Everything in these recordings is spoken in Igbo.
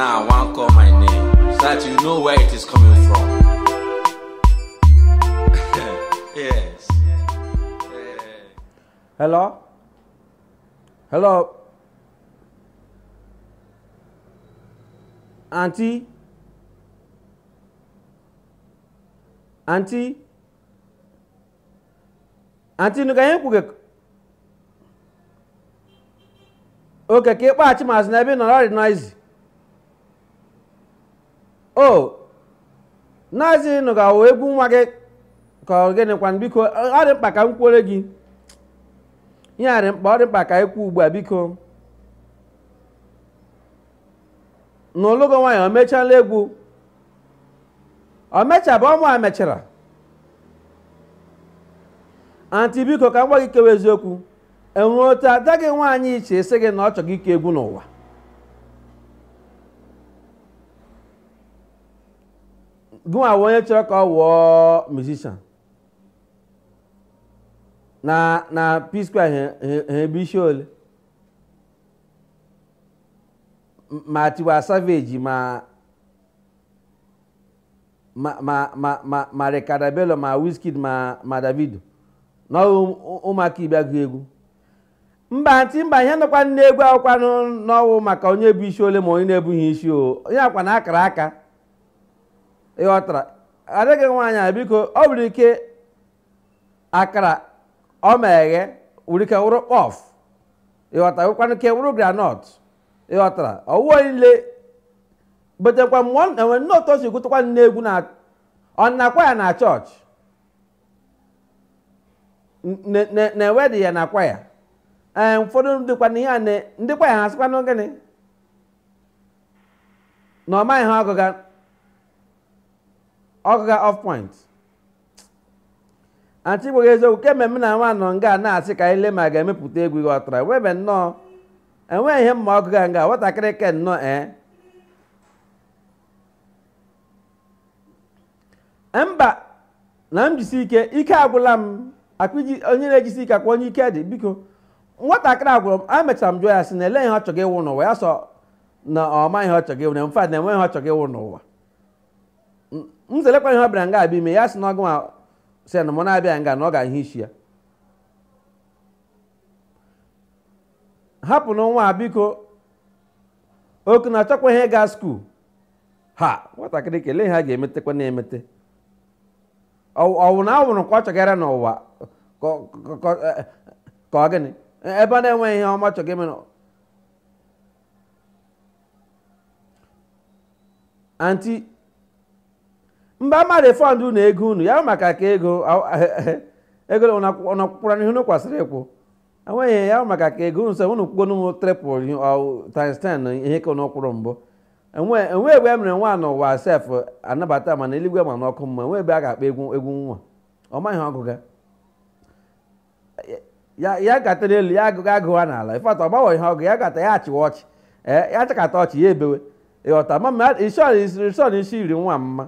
Now I want call my name so that you know where it is coming from. yes. Hello? Hello? Auntie? Auntie? Auntie, nuka yin kuke okay. keke kpa achi mas na ebe nọrọ dị noizi o naazị nụ ga egwu nwa gị ka ọ gịnịkwa biko ọ dị mkpa ka m kwuore gị ihe a dị mkpa ọ dị mkpa ka kwuo ugbu a biko na olugo nwaanyị o mechala egwu o mechabụ ọmụ a mechara anti biko ka m gwa gị kewa eziokwu enwere otu ada gị nwaanyị iche sị gị na ọ chọrọ ike egwu n'ụwa gụnwa bụ onye chọrọ ka ọ wụọ musician na na p ha ebe isi ole ma Tiwa Savage ma ma ma ma ma Bello ma Wizkid ma ma Davido na ụmụaka ibe agụ egwu mba ntị mba ihe nọkwa egwu akwụkwa n'ọwụ maka onye bụ isi ole ma onye na-ebughị isi o onye akwa na akara aka ịghọtara adịghị nwaanyị a biko ọ nwere ike akara ọ ma eghe nwere ike wụrụ kpọf ịghọtara nwekwana ike wụrụ granọt ịghọtara ọwụwa niile betekwa mgbe ọ na-enwe nne otu o si gụtakwa nne egwu na ọ na kwaya na chọọchị na-ewedị ya na kwaya ya ee ụfọdụ dịkwa na a ndịkwa ya ha sịkwa na gịnị na ọ maghị ha ọgụga ọkụ ga off point antigbo eziokwu kemgbe m na nwa nọ nga na-asị ka anyị lee ma ga-emepụta egwu ihe ọtara webe nnọọ enweghị ihe mma ọkụ ga nga nwatakịrị ke nnọọ ee mba na m jisi ike ike agwụla m akpiji onye na-ejisi ike akwa onye ike dị biko nwatakịrị agwụrụ m emechara m jụọ ya sị na ele ihe ọ ịwụ n'ụwa ya sọ na ọma ihe ọ chọrọ ịwụ na mfad na enweghị ihe ọ chọrọ ịwụ n'ụwa nzelekwa ihe ọ bịara nga abịa ime ya sị na ọgụ si na mụ na-abịa nga na ọ ga-ahụ isi ya hapụ na nwa biko oku na ihe ga skuul ha nwatakịrị kelee ha ga-emetekwa na-emete ọwụ na awụrụ ka ọ chọgara n'ụwa ka ọ gịnị ebe a na-enweghị ihe ọma chọga ime anti mba ama refọnd unu ego unu ya maka ka ego ego ọnakwụkwara n'ihu unu ịkwụ enweghị e ya maka ka ego nso unu kwụgo n'ụmụ tripụl times ihe ka unu mbụ enwe e ebe e mere nwa n'ụwa sef anabata mana eluigwe ma n'ọkụ mma enwe ebe a ga-akpa egwu egwu nwa ọ maghị ọgụga ya gatara elu ya agụga agụwa n'ala ifeata ọ gbanwe ihe ọgụ ya gata ya achịwa ọchị ya chakata ọchị ya ebewe ịghọta ma ison isi iri nwa mma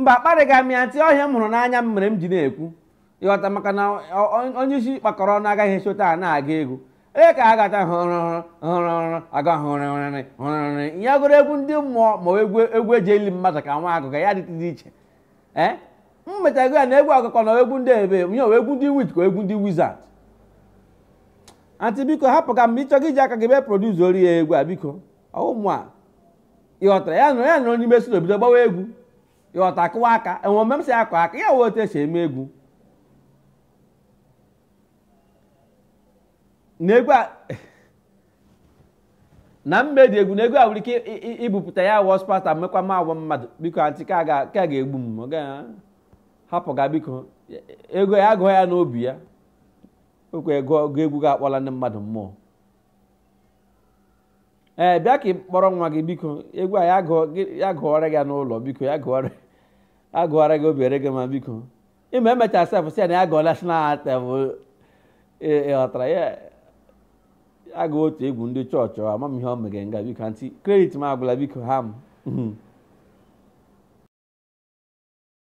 mba akparịghị m ya ntị ọhịa m hụrụ n'anya m mere m ji na-ekwu ịghọta maka na onye isi kpakọrọ ọnụ agaghị echota a na-aga egwu ee ka a gata hụrụhụrụ aga hụrịrị hụrịrị ya gụrụ egwu ndị mmụọ ma egwu egwu eji eli mmadụ ka nwa agụga ya dịtụdị iche ee m ya na egwu ọgụkọ na egwu ndị ebe nye egwu ndị wit ka egwu ndị wizard antị biko hapụ ka mgbe ịchọga iji aka gị be produs ori ya egwu a biko ọwụmụ a ịghọtara ya nụrụ ya nụrụ n'ime na obido gbawa egwu ịghọta akụwa aka enwe msị m si akụ aka ya wee otu esi eme egwu na mmedị egwu na egwu a nwere ike ibupụta ya wọ spata mekwa ma mmadụ biko antị ka ga-egbu m ah, hapụ ga biko ego ya obi ya n'obi ya okwe egwu ga-akpọla ndị mmadụ mmụọ ee eh, bịa ka ị kpọrọ nwa gị biko egwu a ya gụọrọ gị n'ụlọ biko ya gị obere gị ma biko ime emechaa sef si na ya gụọ national antem ịghọtara ya agụ otu egwu ndị chọọchị amamihe ọ megere nga biko anti kredit m agwụla biko ha